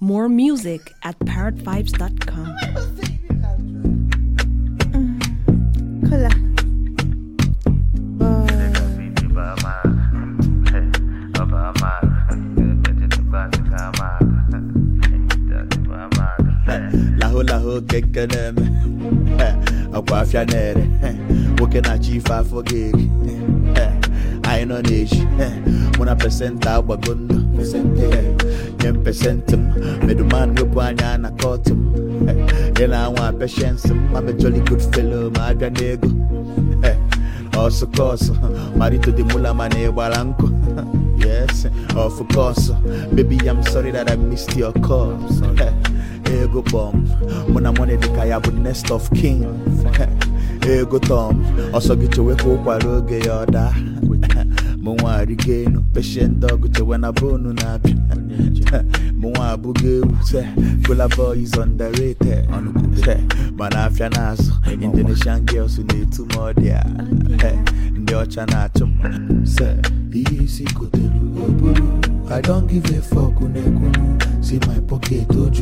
More music at parrotvibes.com. Hola. lahụ lahụ kekene m eh, akwa nwoke na-achọ ife afọ gị eri anyị nọ na mụ na pesenta agbago ndụ apɛhyɛ ntem medoman webu anya na kɔɔto m yɛ na anwa apɛhyɛ nsem mabɛjɔli good fellow na ego ɔso marito de mula na Yes, of course. Baby, I'm sorry that I missed your Ego bomb. When I'm nest of kings Ego Tom. Also mụnwa arịgo elu kpechie ndị ọgụ chewe na bonu na-abịa mụnwa abụghị ewu se Kola boy is underrated mana afịa n'azụ Indonesian girls na-etu m ọdịa ndị ọcha na-achụ m se ihe isi kotere oburu I don't give a fuck unekunu si my pocket oju